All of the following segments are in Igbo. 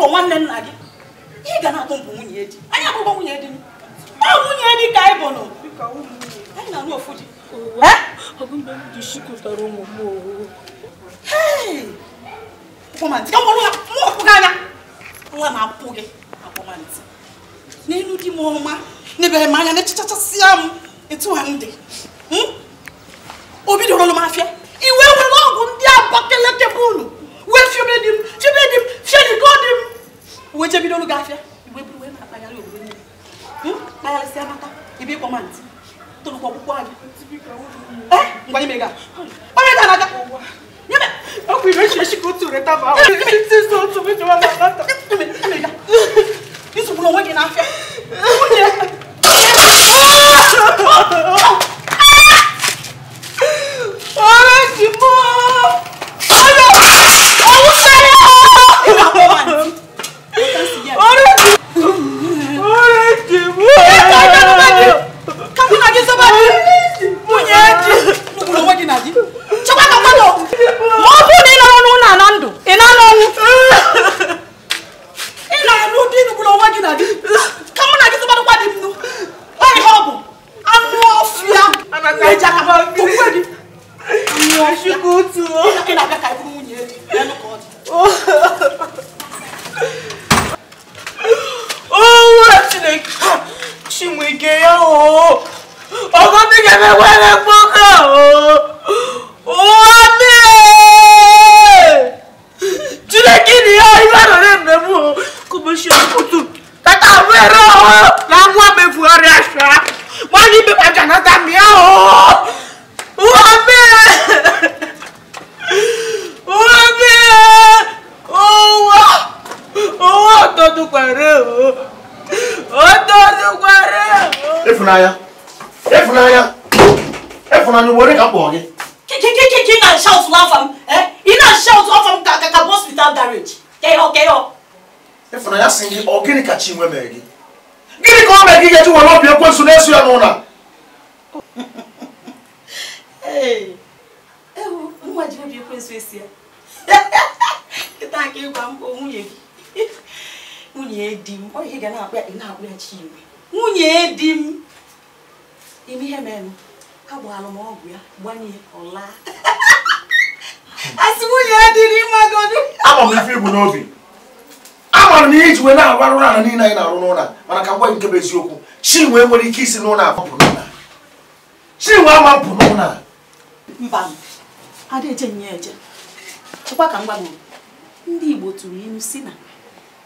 dịka nwanne nna gị ị ga na-atụ mpụ nwunye di anyị abụghị nwunye di ọ nwunye di ka anyị bụnụ anyị na-anụ ofu di anya nwa na-apụ gị akpọmantị n'elu di m ọma n'ebere m anya na-echichachasịa m etu ha m dị hmm? o bidoro m afịa ochebido olu gị afịa igbe buru ibu na-akpagharị obodo niile kpagharịsịa mata ebe ịkpọ ma ntị tolukwa ọkpụkpọ anya ngwa ime ga onye ga anaga nyebe ọkwa ire echi echi ka otu reta ma ahụ otu mejewa na nata isogbu onwe gị n'afịa nwunye Efunanya. Efunanya. Efunanya, where ka po ge? Ki ki ki ki ki shout laugh Eh? Ina shout off am ka ka boss without garage. Keyo keyo. Efunanya singi ogini ka chinwe megi. Gini ko megi ge ti won na esu ya no Ewu, nwa ji obi ekwensu esi ya. Kita ka igwa m nwunye gị. Nwunye di m, ọ ihe ga na-akpọ ya, ị na-akpọ ya Chinwe. nwunye di m ime ihe mere ha gbaalụ m ọgwụ ya gbanye ọla asị nwunye ya dịrị ịmagodu ama m ife ibu n'obi amara m iji wee na-arụ ọrụ ala niile anyị na-arụ n'ụlọ mana ka ngwa nke bụ eziokwu chi nwee nwere ike isi n'ụlọ apụpụ n'ụlọ chi nwee ama pụ n'ụlọ a mba ada eje nye eje chekwa ka ngwa ndị igbo tụrụ ilu si na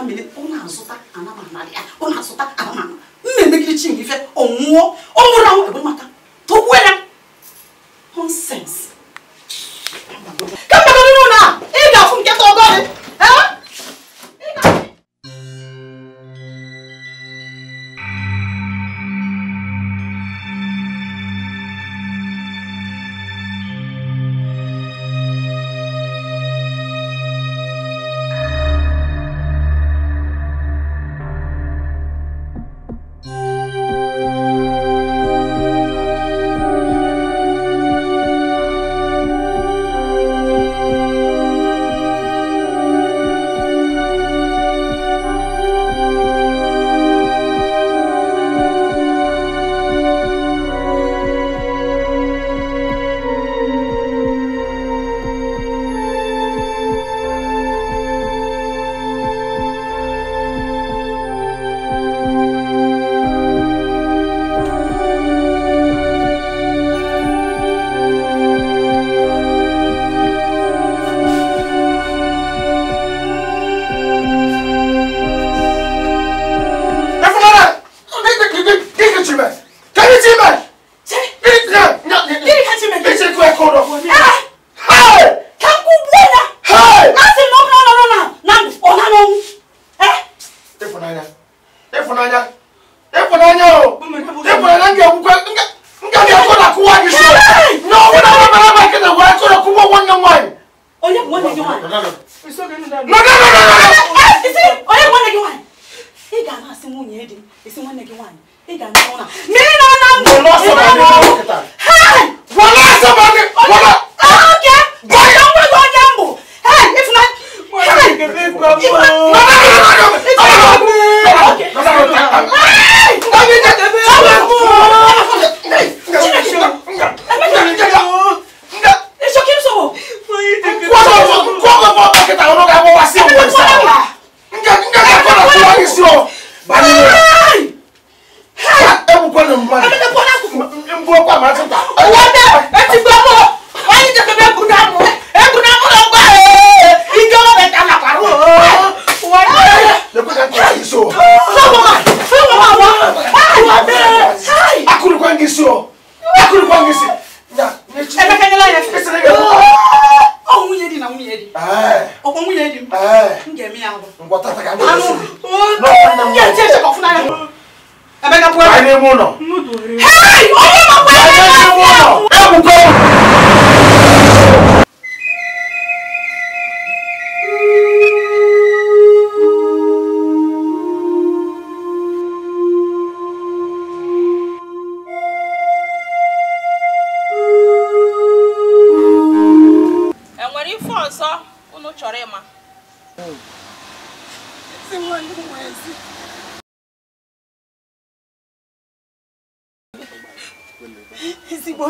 aka mene ọ na-azụta anamana ya ọ na-azụta anamana m na-emegide chi m ife ọ nwụọ ọ nwụrụ anwụ ebe maka tọgbuo ya nonsense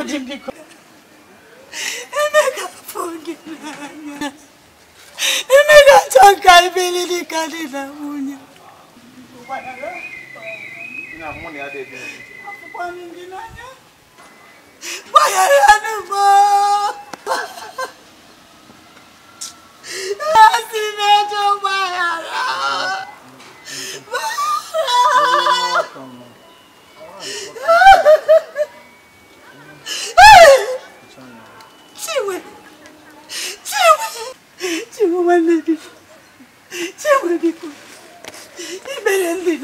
Pode me Emeka fungilanya. Emeka tonka ibilili kadina mu.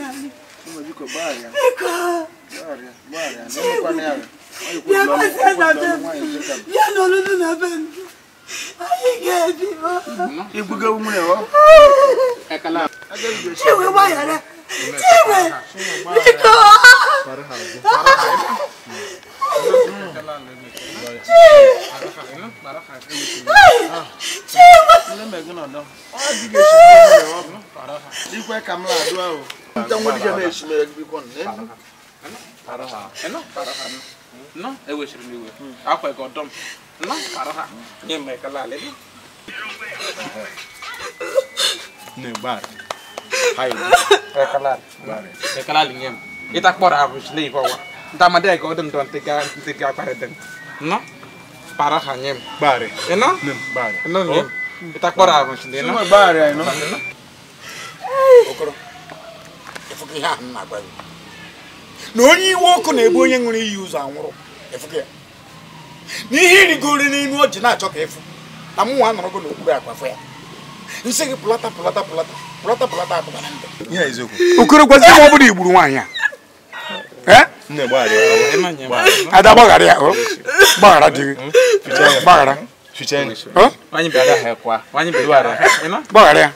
Jamani, umejiko baya baya baya, ndio kwa nani? yanolulu nabenu ayigedibo igbuge umune o chiwe wayara chiwe biko ikwe ka não na-adụ não nta nwa não na-echimere não bikọ nọ não m iwe não gị ọdọ não nọ para não nye m não alị ekele não nye não ịta kpọrọ não chi não ibe não tama de ko dum don tiga tiga pare den no para hanyem bare eno nem bare eno nem ita kora ko sinde no bare eno okoro efuki ha na gba no ni iwe ọkụ na-egbu onye nwere iyi ụzọ anwụrụ efuki ya n'ihe irigoro n'elu ọjị na-achọ ka efu na m nwa nọrọ gị n'okpuru akwafọ ya nsị gị pụlata pụlata pụlata pụlata pụlata apụtara ndụ okoro gwazi m ọ bụla igburu nwaanyị ya Eh? ada gbaghara ya oh. gbaghara dị hmm? eh, gbaghara oh. gbaghara ya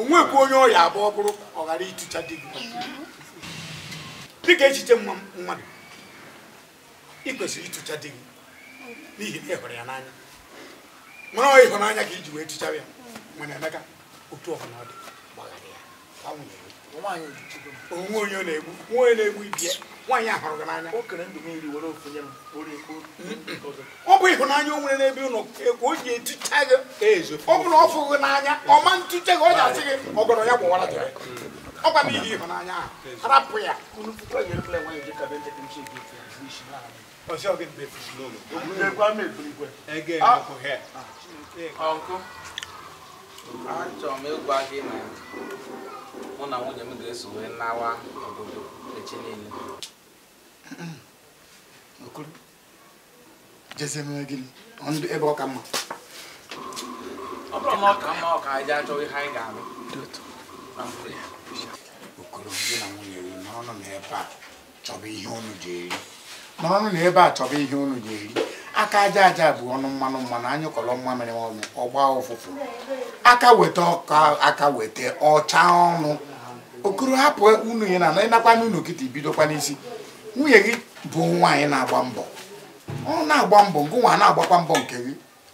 onwekwa onye ọya abụ ọ bụrụ ọ ghara ịtụcha di gị dịka echiche mmadụ ị kwesịrị ịtụcha di gị n'ihi na ị hụrụ ya n'anya nwere ịhụnanya ka iji wee tụcha ya mana Emeka otu ọhụrụ ọ dị onwe onye na-egbu onye na-egbu ibie nwaanyị a hụrụ gị n'anya ọ bụ ịhụnanya o nwere n'ebe ụlọ ka o ji etucha gị ezo ọ bụ na ọ fụghị n'anya ọ ma ntụcha gị ọ ji asị gị ọgọrọ ya gbawara ọ gwa n'ihi ịhụnanya ahụ ya ọsị achọrọ m ịgwa gị na mụ na nwunye m ga-eso wee nawa obodo echi niile okoro jeze mere gịnị ndụ ebe ọ ka mma ọ bụrụ na ọ ka mma ọ ka anyị achọ ihe anyị ga-alụ okoro gị na nwunye gị n'ọnụ na ebe a chọba ihe unu ji eri n'ọnụ na ebe a chọba ihe unu ji eri aka aja aja bụ ọnụ mmanụ mmanụ anyị kọrọ mmamịrị ọnụ ọgba ụfụfụ aka weta ọka aka weta ọcha ọnụ okoro hapụ unu ya na ịnakwa n'unu kịta ibidokwa n'isi nwunye gị bụ nwaanyị na-agba mbọ ọ na-agba mbọ nke nwa na-agbakwa mbọ nke gị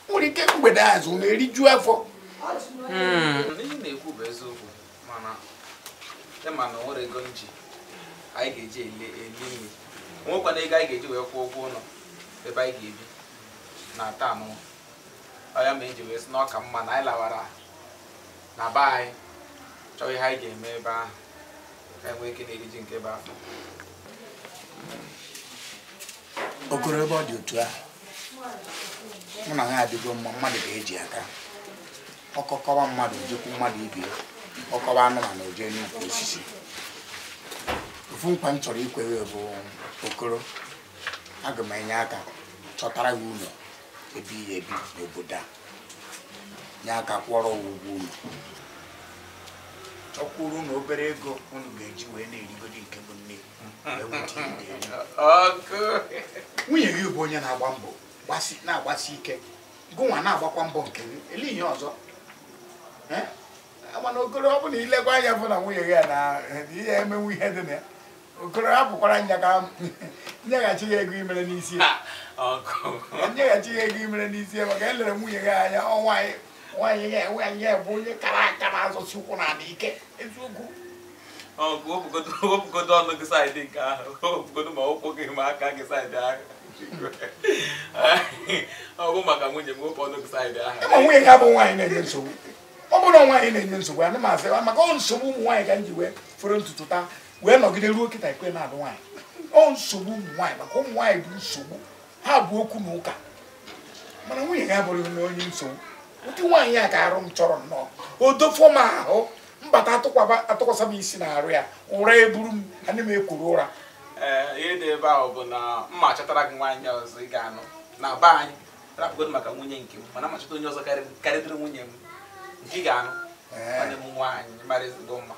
nwere ike mgbede azụ hmm. na eriju afọ ihe na-ekwu bụ eziokwu mana ịma e na nwere anyị ga-eji eli nri nwekwana ego anyị ga-eji wee kwụọ ụgwọ ụlọ ebe anyị ga-ebi na-ata anụ ọya ma eji wee sị na ọka mma na anyị lawara na be anyị chọọ ihe anyị ga-eme ebe ahụ ka enwee ike na-eriji nke be okoro ebe ọ dị otu a, mụ na ha adịgo mma mmadụ ga-eji aka ọkọkọwa mmadụ ojekwu mmadụ ibe ọkọwa anụmanụ oje n'ukwu osisi ofu nkwa m chọrọ ikwewe bụ okoro aga m enye aka chọtara gị ụlọ ebe ihe ebi n'obodo a nye aka kwọrọ ụgwọ unu ọkwụrụ na obere ego unu ga-eji wee na-erigoro nke bụ nne nwunye gị bụ onye na-agba mbọ na-agbasi ike gụnwa na-agbakwa mbọ nke gị ele ihe ọzọ mana ogoro ọ bụla ilekwa anya bụ na nwunye gị a na ihe emenwe ihe dị na ya okoro hapụkwara nyeghachi gị ego imere n'isi nyeghachi gị ego imere n'isi maka elere nwunye gị anya ọnwa nwaanyị ya bụ onye kara aka na-azọsi ụkwụ na ala ike eziokwu wepụgodo ọnụ gị saịdị nke ahụ wepụgodo ma ụkwụ gị ma aka gị saịdị ahụ ọgụ maka nwunye m wepụ ọnụ gị saịdị ahụ nwunye gị abụ nwaanyị na-enye nsogbu ọ bụrụ nwaanyị na-enye nsogbu ya m asị maka ọ nsogbu ụmụ nwaanyị ka m ji wee fere ntutu taa wee nọgide ruo kịta ekwe na-alụ nwaanyị ọ nsogbu ụmụ nwaanyị maka ụmụ nwaanyị bụ nsogbu ha bụ okwu na ụka mana nwunye ya abụrụghị na onye nsogbu ụdị nwaanyị a ka arụ m chọrọ nnọọ o odofọ m ahụ mbata atụkwasị m isi na-arụ ya ụra eburu m ana m ekwuru ụra ihe dị ebe ahụ bụ na mma chọtara gị nwaanyị ọzọ ị ga-anụ na be anyị rapụgodo maka nwunye nke m mana machọta onye ọzọ karịrị nwunye m nke ị ga-anụ nwanne m nwaanyị mara mma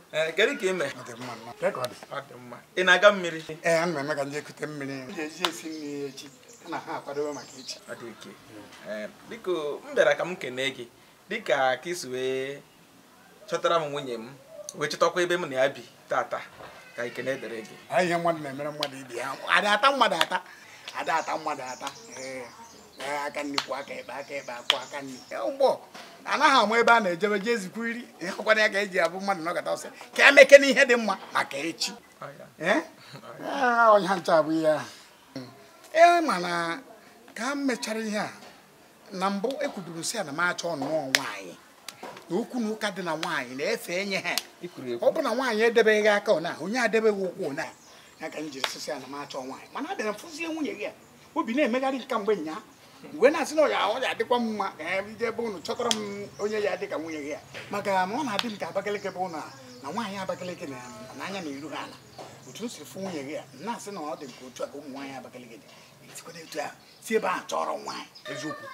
Eh, kedu ka ị ị na-aga mmiri ee eh, m ka mmiri eji esi echi na ha akwadobe maka eh, biko m bịara ka m kenee gị dịka ka isi wee chọtara m nwunye m wee chọtakwa ebe m na ya bi tata ka ikene gị ata mmadụ ata aka nnukwu aka ekpe aka ekpe akwụ aka nnukwu anaghị ama ebe a na-ejebe jee zikwu iri ịhụkwana ya ka eji abụ mmadụ nọkọta ọsọ ka emeke na ihe dị mma maka echi ọnya eh? ah, ncha bụ ihe e mana ka m mechara ihe a na mbụ ekwuduru si ya na m achọ ọnụọ nwaanyị na okwu na ụka dị na nwaanyị na-efe enye ha ọ bụ na nwaanyị edebeghị aka ọna onye adebeghị ụkwụ ụna ya ka m jiri sisi ya na m achọ nwaanyị mana abịara fụzie nwunye gị a obi na-emegharị nke mgbe nyaa iwe na-asị na ọ ga-adịkwa m mma ka ya ije ebe ụnụ chọtara m onye ya dị ka nwunye gị a maka ma ọ na-adị m ka Abakaliki bụ ụnụ a na nwaanyị Abakaliki na n'anya na iru ha ala otu o si fụ nwunye gị a na-asị na ọ dị nke otu a ka ụmụ nwaanyị Abakaliki dị etikwana etu a si ebe ahụ chọrọ nwaanyị eziokwu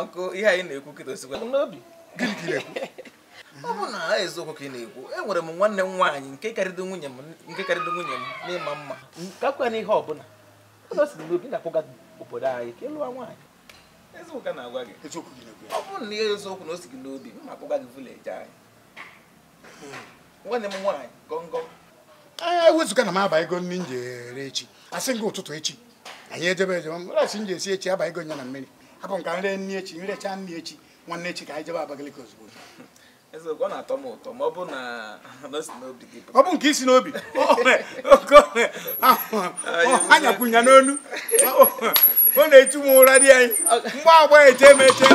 ọkụ ihe anyị na-ekwu kịta osikwa n'obi gịnị ka na-ekwu ọ bụ na eziokwu ka ị na-ekwu e nwere m nwanne m nwaanyị nke karịrị nwunye m n'ịma mma kakwa n'ihe ọ bụla obi na-akwụga obodo anyị ka ịlụwa nwaanyị eziụka na-agwa gị ọ bụrụ na ihe eziokwu na o si gị n'obi mma akpọga gị vileji anyị nwanne m nwaanyị gọngọ ewezụga na m aba ego nri m ere echi asị gị ụtụtụ echi anyị ejebe ejebe mkpụrụasị m ji esi echi aba ego nya na mmiri abụ m ka nri nri echi nrecha nri echi nwanne echi ka anyị jebe abakaliki ozugbo ọ na-atọ m ụtọ ma ọ bụ nke isi n'obi anyakwụnya ah, ah, ah, n'onu ọ na-echu m ụra di anyị mgbe agba eche m eche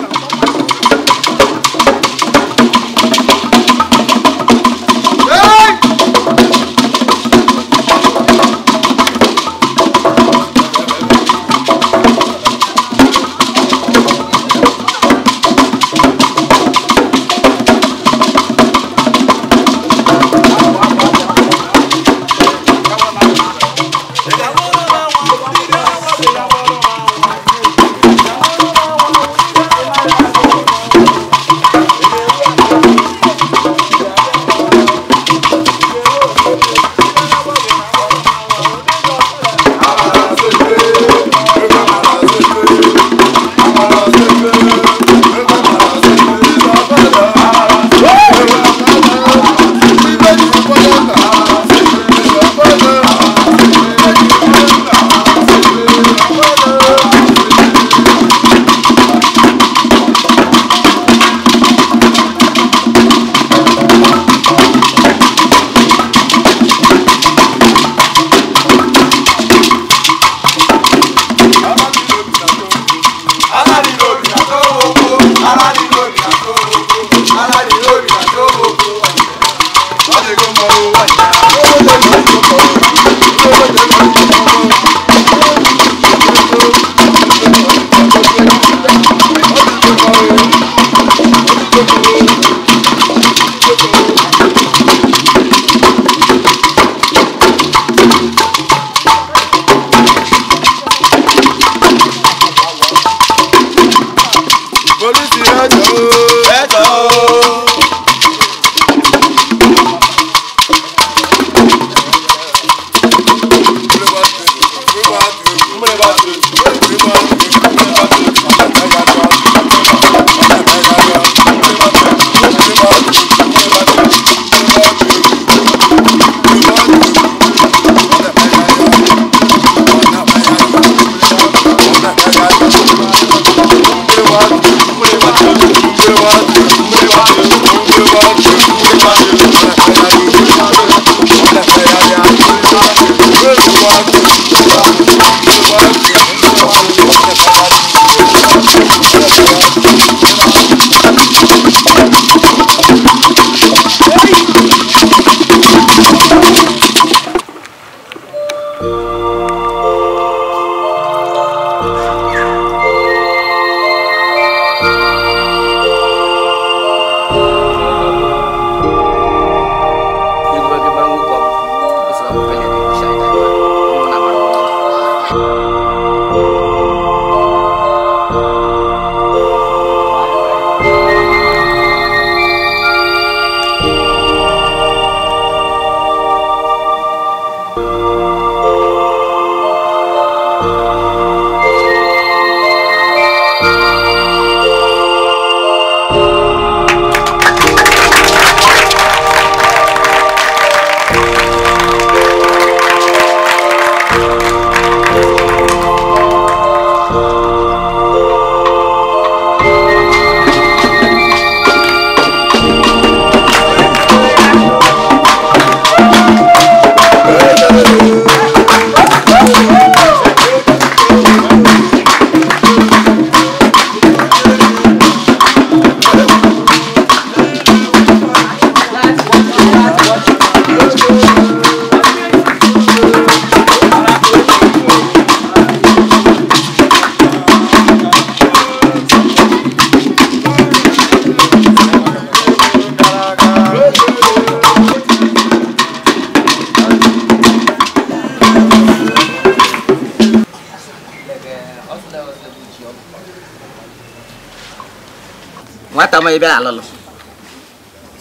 ma ibẹ̀ àlọ́ lọ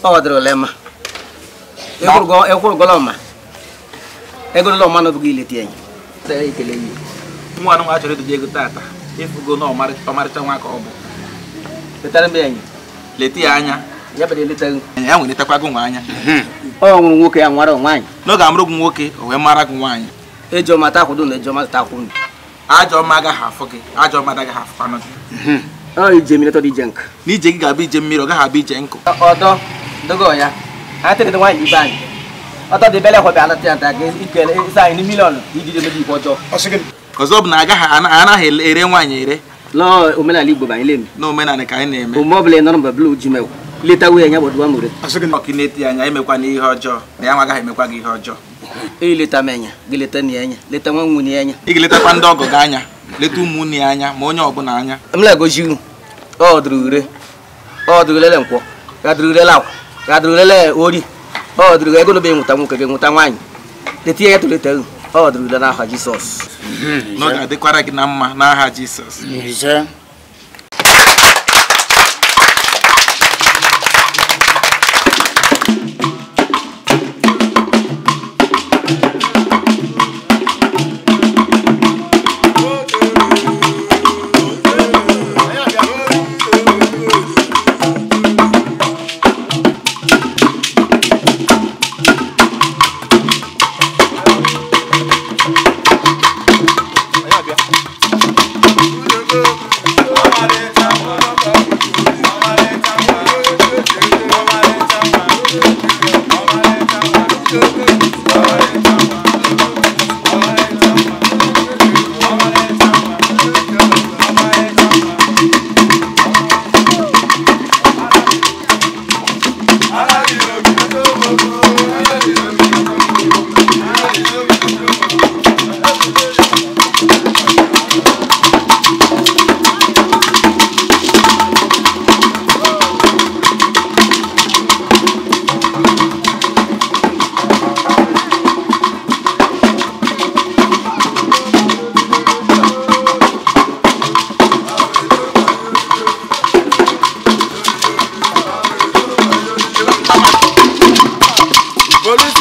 ọwọ́ dẹrẹ ọlẹ́ ma ekuru gọlọ ma egolo lọ ma enyi sere ikele yi nwa nwa ego tata ifugo na ọmarịcha nwa ka ọ bụ letara ya anya ya ya nwa anya hmm. ọ nwoke ya nwara nwaanyị n'oge amụrụ gị nwoke o wee mara gị nwaanyị na ajọ ọma agaghị gị ajọ ọma afụkwanụ hmm. đi chăng, Oh, bị mi na to di jenk. Ni je ga bi je mi ro ga ha bi je nko. Odo dogo ya. Ha te de wan iban. Odo de bele ko be ala tianta ge ikele isa ni million iji de meji foto. Osigin. Kozob cái, aga ha ana ana he ere nwanye ere. Lo là là đi bộ lên, omenala Igbo ba ile mi. Na omenala lít anyị na-eme. Ụmụ ọbụla nọrọ mba blu ji mewu. Leta wuye anya gbọdụ amụre. Asịgị na ọkịneti anya emekwa na ihe ọjọọ. Na ya nwa agaghị emekwa gị ihe ọjọọ. Ileta m enya, gị leta lít enya, leta nwa nwunye enya. Ị ga-letakwa ndị ọgọ gị anya leta ụmụnne ya anya ma onye ọbụla anya mlegozi unu ọdụrụre ọdụrụlele nkwọ gadụrụlele akwa gadụrụlele ori ọdụrụga ego n'obe nwụta nwoke gị nwụta nwaanyị leta ihe ya toleta unu ọdụrụle n'aha jisọs na ọ ga-adịkwara gị na mma n'aha jisọs Thank you.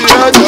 Yeah.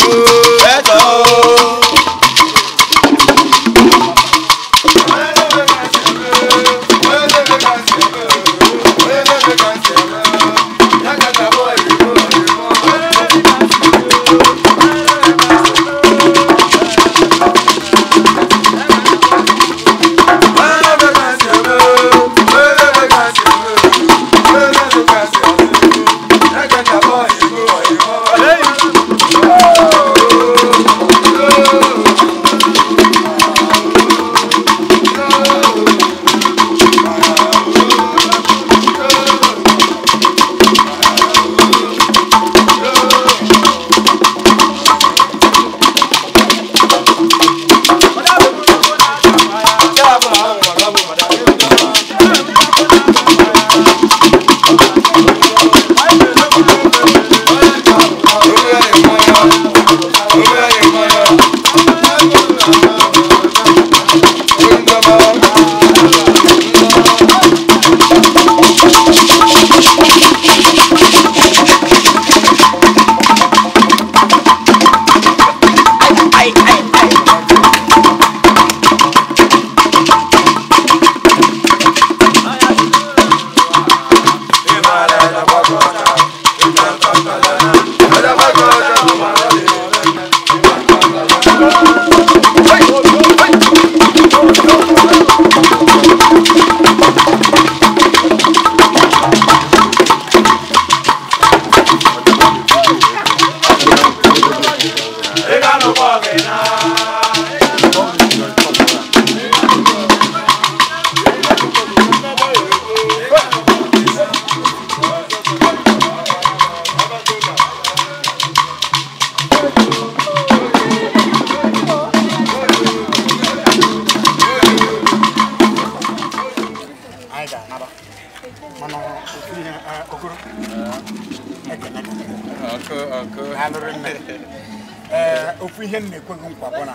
ofu ihe m na-ekweghị nkwa bụ na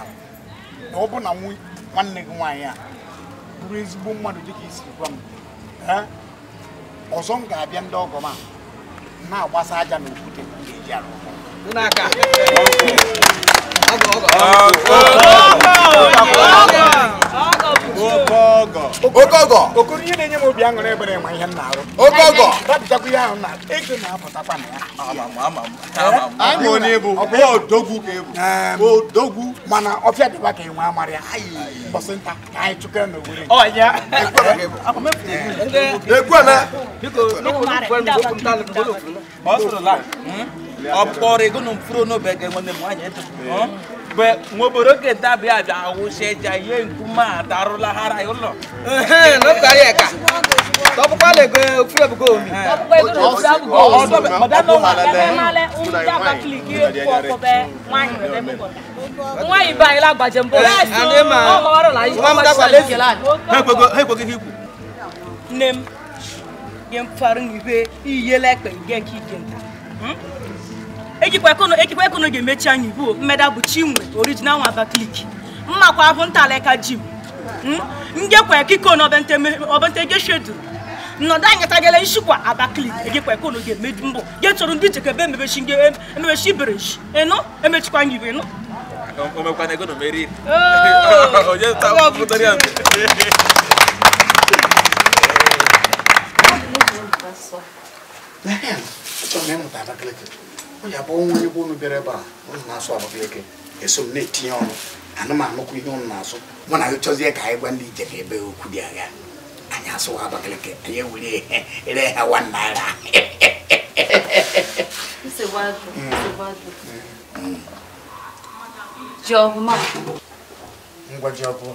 na ọ bụ na nwanne gị nwaanyị a bụrụ ezigbo mmadụ dịka isi gwa m ọzọ m ga-abịa ndị ọgọ m a na-agbasa aja na okwute eji arụ okogo okoro ihe na-enye m obi aṅụrị ebere enwe ihe m na-arụ ihe ahụ na ego na-apụtakwa na ya ama eh? onye bụ odogwu ka ebu odogwu mana ọfịa dịba ka enwe amarị bọsịnta ka anyị chụkere na owere ọ bɛ moboro ke dabe ada awusɛdza ye nkuma ataro lahara yɔ lɔ. n'o ta yɛ ka tɔpukpa le gbɛ fúlẹ̀ bugó omi. Eh. tɔpukpa yi tó fúlẹ̀ bugó omi. ɔsɔ bɛ mɔdánù wà lɛfɛ má lɛ ŋdá bakili kí eku ɔkọ bɛ wáyé rɛ bɛ mɔgɔ. wáyé ba yìí la gbàjɛ mbɔ. ɛɛ sùn ɔmɔ wɛrɛ la yìí ɔmɔ sàlẹ jìlá. hekpekpe hekpekpe k'i nem yen fari ni be iye lɛ kpɛ k'i gɛn ta. Hmm? ejikwa ekunu ga-emechi anyị bụ mmeda bụ chinwe original nwa Abakaliki mmakwa bụ ntaleka ji hmm? njekwa kiko na obente geshedu nnọdụ anyị tagala nshikwa Abakaliki ejikwa ekunu ga-emedu mbụ getụrụ ndị chekebe emebechi emebechi iberechi ịnụ emechikwa anyị ịnụ omekwana ego na omeri onye ya bụ onwe onye bụ bịara ebe a unu na-asụ abụba eke eso m na-etinye ọnụ anụmanụkwa ihe ụnụ na-asụ mụ na gị chọzie ka anyị gwa ndị ije ebe okwu dị agha anyị asụwa Abakaliki anyị ewere ere ha one naira mm. ngwa ji ya bụ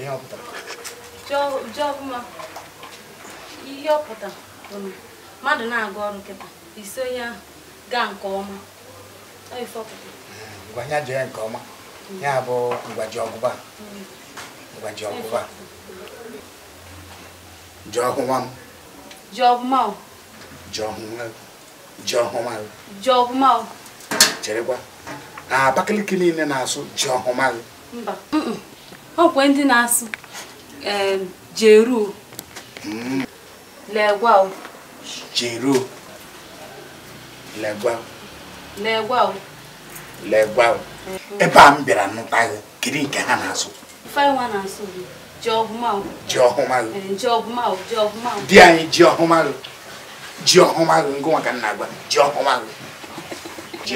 ihe ọpụtara ihe ọpụta mmadụ na agụ ọrụ nkịta ise onye ahụ gaa nke ọma ngwanya jee nke ọma ya bụ ngwaji ọgụba ngwaji ọgụba ji ọhụma m ji ọhụma o ji ọhụma ji ọhụma o ji ọhụma o cherekwa na abakaliki niile na-asụ ji o mba okwe ndị na-asụ jeruo mm. legwa jeruo legwa mm-hmm. ebe a m bịara nụta gị kiri nke ha na-asụ ji eh, di anyị ji ọhụmalụ ji ọhụma ngụnwa ka nna gwa ji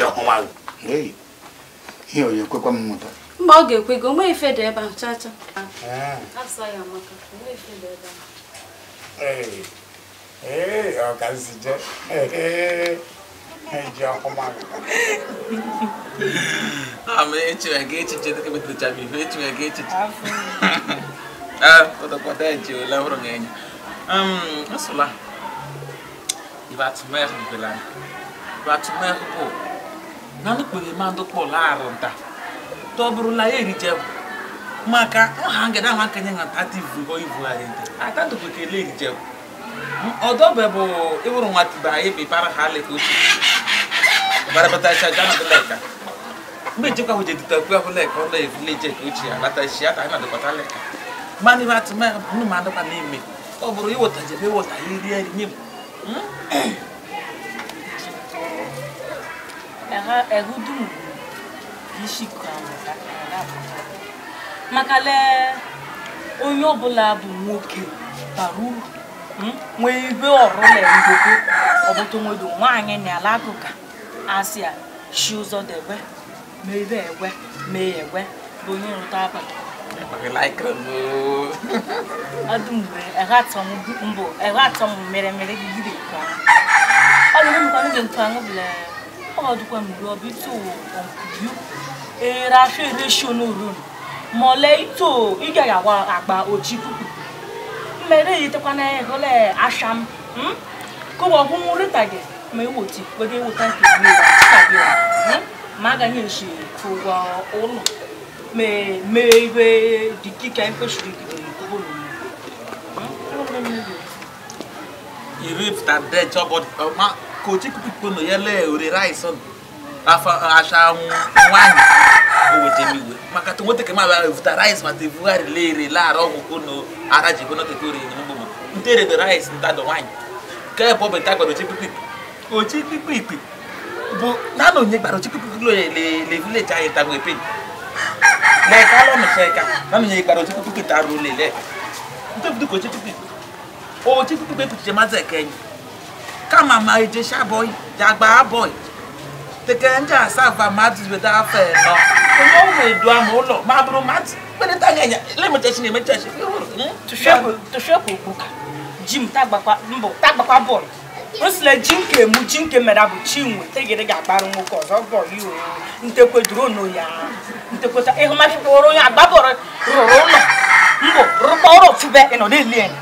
ọhụmalụ ji ihe onye kwekwa m mmụta mba ọ ga-ekwe gị o ife dị ebe ee ee ama echiwe ga echiche dịka e metụtachara ife echiwe ga echiche ah, ụtọkwata eji ole hụrụ gị um, bela bụ na nukpere ma ndị kpọlụ arụ nta tọbụrụla ya erije maka ọha ngada ahụ akenye na nta erije bụ ọdọbe bụ ịwụrụ nwatiba ebe bara ha aleka otu barabatacha jana dị leka mgbe njekwa hụ jedita okwu ahụ leka ọlọ evileji eke ochie alatachi ata anyị na leka ibe ya ma n'ime ọ bụrụ ịwụta jebe ịwụta ya iri eri nye m hmm? maka lee onye ọbụla bụ nwoke bara uru nwee ibe ọrụlangoo ọbụtonwedo nwaanyị n'ala agụka asị a shi ụzọ debe mee ebe egwe mee egwe bụ onye rụta abalị ọdụmgbe mbụ eghatọ m mere mere nke ọbụ ito ị gaghị agba mere yitekwana hụle asham kụwa ọgwụnwụ rita gị ma ewoti were ewota ma agaghị esi ụgwọ ụlọ me ibe dị dịka kwesịrị irifta dẹjọ bọ ọma kò tí kúkú kpono yẹlẹ òrè ráìsàn. Afa acha um vou Mas que tu ashamu nwaanyị owejemiwe maka tonwoteke mabara vuta rice ma tevugharịla ere laara ọgwụkwụ na ara ji gono tekore nyemgbom ntere de rice ntado nwaanyị nke bụ beta gbara oche kpikpi oche Bo, ikpi bụ nem onye gbara oche kpikpi lo le já está vileji anyị tagwe pen lẹka lọmọsẹ ẹka naanị onye gbara oche kpikpi ta ruo lele ntebudu ka oche kpikpi oche kpikpi te mazị ekenyi kama ma eje sha boy jagba boy tekee ndị asaa ba mmadụ afọ ịnọ onye edu ama ụlọ ma a bụrụ mmadụ kperịta anya anya lemechachi na-emechachi tụshepụ ji m mbụ tagbakwa bọọlụ osile ji nke mu ji nke mere bụ chinwe tegere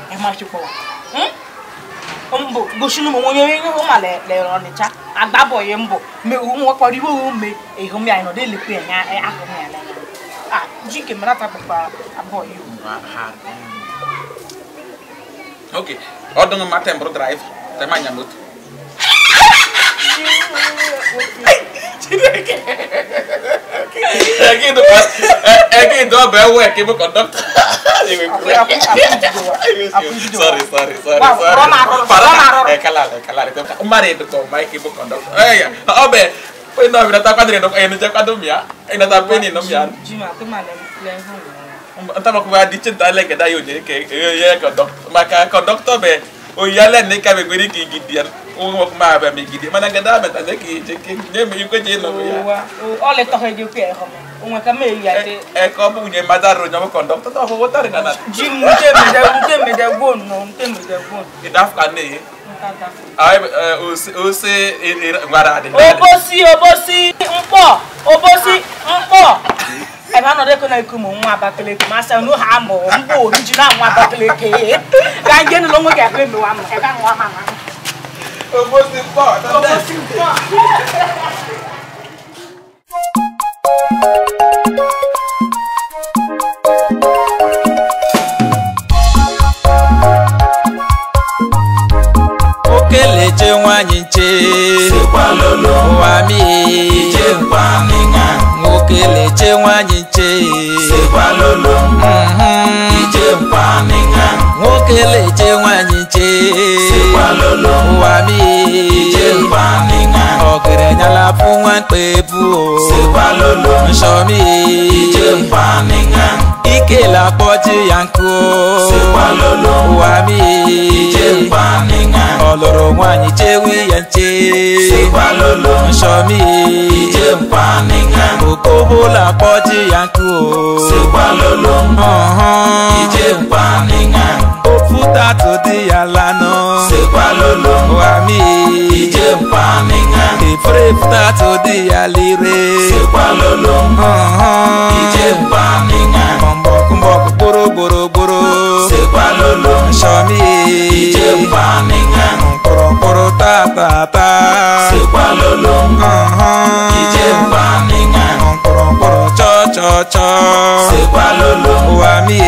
nwoke ọzọ mbo gosinu mo wonyo yin ho ma le ni cha agbabo ye mbo me o mo ko ri wo me e ho mi ano de ah ji ke mara ta papa okay order ma tem bro drive te ma nya moto ẹkí tó ẹkí tó bẹ wọ ẹkí mú kọndọktọ. sorry sorry sorry sorry para ẹkala ẹkala rẹ tẹmpa mari ẹdọtọ ọmọ ẹkí mú kọndọktọ ẹyà ọbẹ pé náà mi nata kwadiri ẹnìjẹ ẹnìjẹ kwadó mìá ẹnìjẹ pé ní nọ mìá. ntama kuma di tsi ntaale gẹdá yóò jẹ kẹ ẹ yẹ kọndọktọ maka kọndọktọ bẹ oyalẹ ní kàmẹgbẹ ni kau í gidi dia ungo kuma ba mi gidi mana gada ba ta neki cheke nye mi ko je no ya o le to he ju ke ho ungo ka me ya te e ko bu nye mada ro nyomo conductor to ho wota ri nana ji mu je mi da mu je mi da go no mu je mi da go e da fa ne ayi o se ngwara adi obosi obosi mpo obosi mpo ebe anọdụ eko na-eku ụmụ nwa abakeleke ma asị nu ha mụ mba oriji na nwa abakeleke ga nje nụlọ nwe ga-ekpe mewa m ebe nwa ma Eu vou se embora, tá Eu vou se embora. okeleche nwanyị nche ụwa m okeleche nwanyị nche nwokeleche nwanyị ṣe. sípà lọ́lọ́ wà mí ìjẹ́ ìpànìyàn ọ̀gẹ̀dẹ̀ yàrá fún wọn pé bú o sípa lolo nsọ́mi ìjẹ́ ìpànìyàn ike làpọ̀jù yankó sípa lolo wà mí ìjẹ́ ìpànìyàn ọlọ́rọ̀ wọn àyíjẹ́ wíyànjẹ́ sípa lolo nsọ́mi ìjẹ́ ìpànìyàn òkòbó làpọ̀jù yankó sípa lolo ìjẹ́ ìpànìyàn òfúta tó di yàrá náà sípa lolo wà mí ìjẹ́ pàmìyàn. ìfúrèfù tá a tó di àlèrè. sípa lolo ìjẹ́ pàmìyàn. kọ̀m̀bọ̀kúnbọ̀ gbòòrò gbòòrò gbòòrò. sípa lolo sọmi ìjẹ́ pàmìyàn. kọ̀rọ̀kọ̀rọ̀ tààtààtà. sípa lolo ìjẹ́ pàmìyàn. kọ̀rọ̀kọ̀rọ̀ chọ́chọ́chọ́. sípa lolo wàmí.